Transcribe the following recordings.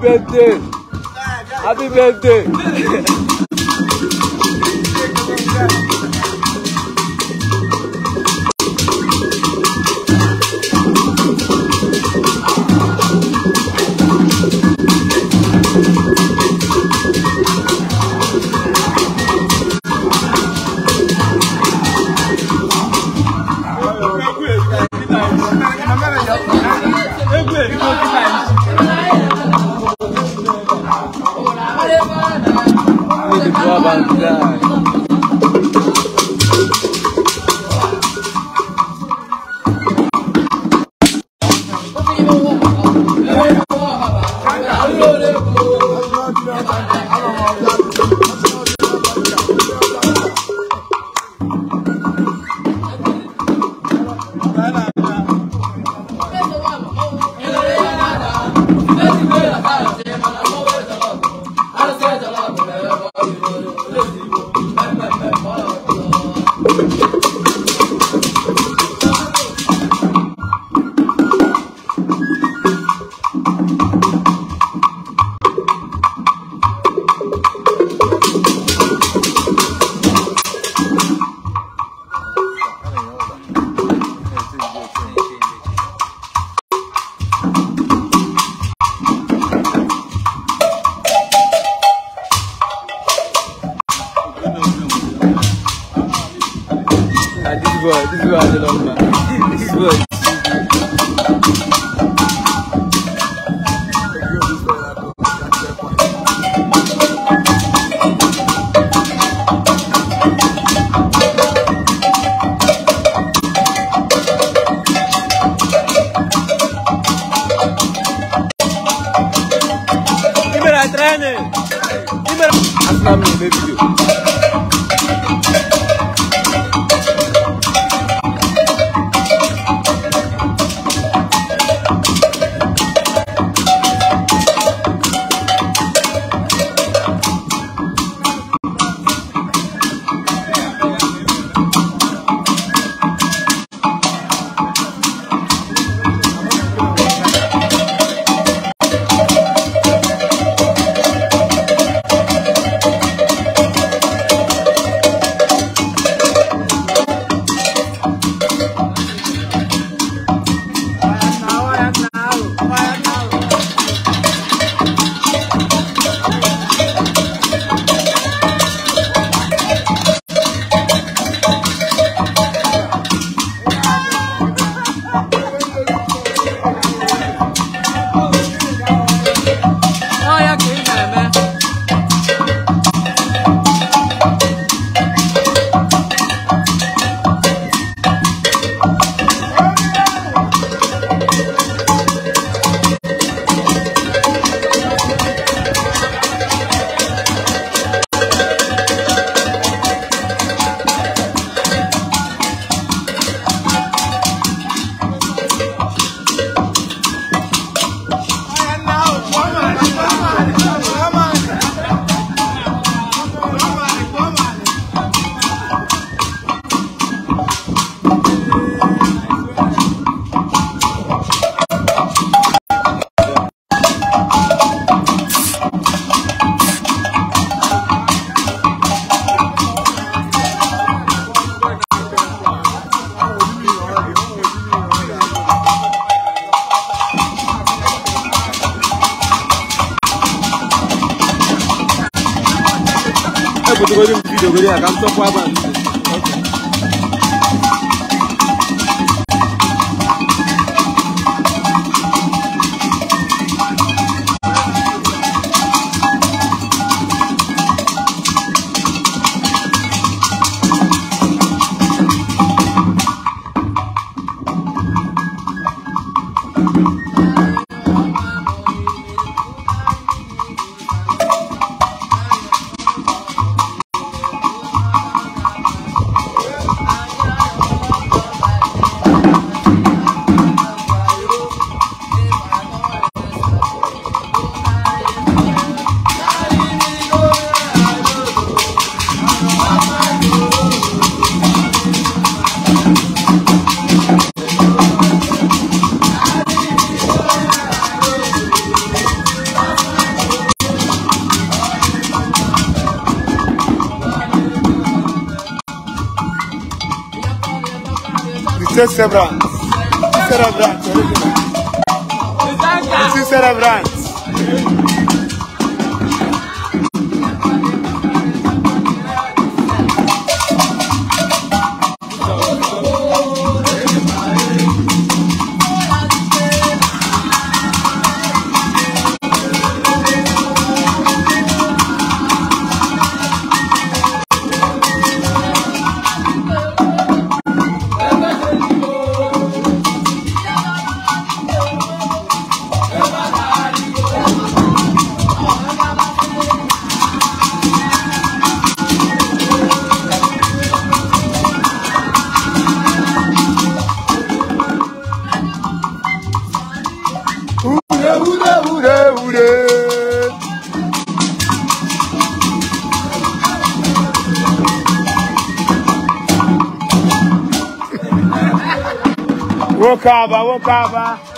birthday! Happy birthday! what this is what I love, man. This is what. Training! Asla mı ne video? ebutogoro m vidiyo goro ya ka m tọpụ aba nti Você cerebrante. Cerebrante. Você cerebrante. Woke up, woke up.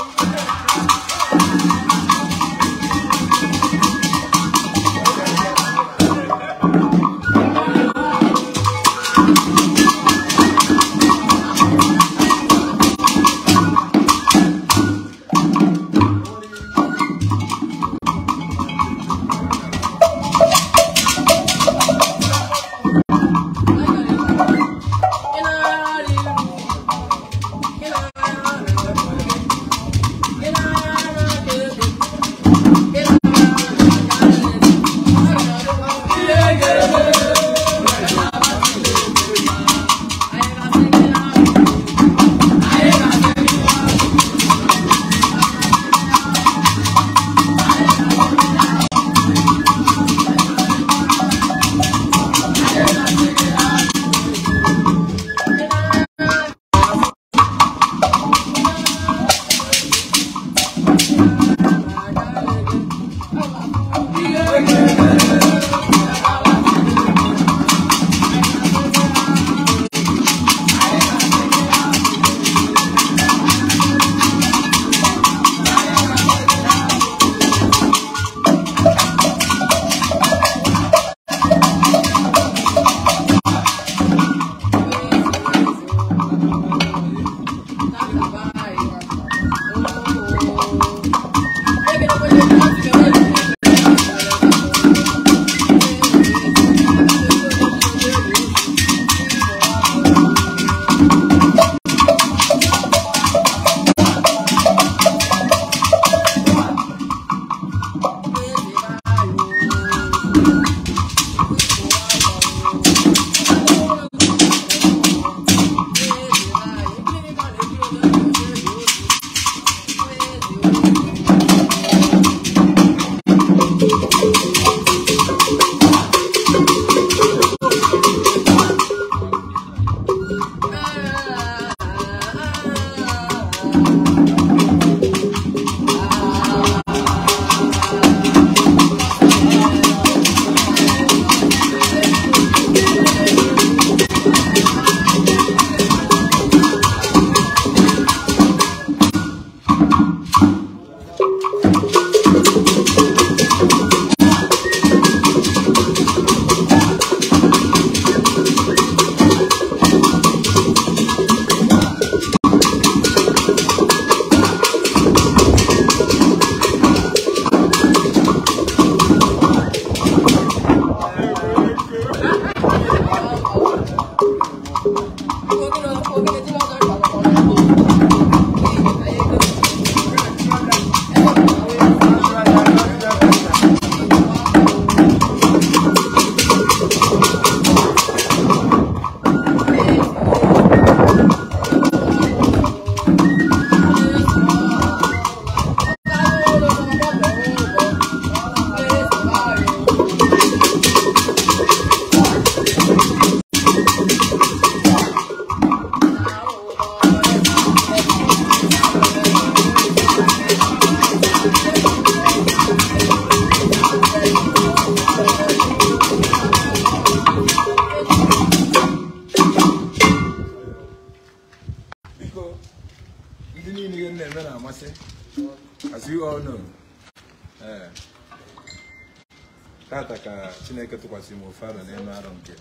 chineke tụkwasịrị m ofe arọ n'ime arọ nke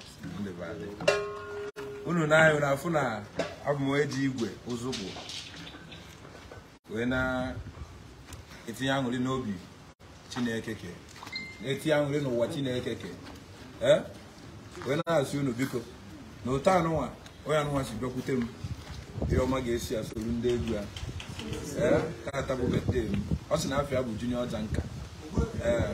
ndebadị unu na-ahụ na afụ na abụ m eji igwe ụzụkwụ wee na-etinye aṅụrị n'obi chineke ke na-etinye aṅụrị n'ụwa chineke ke ee wee na-asị unu biko na ụtọ anụnwa onye anụnwa si bịakwute m ihe ọma ga-esi ya soro ndị egwu ya ee taata bụ bete m ọ sị na afọ ya bụ junior ọja nka ee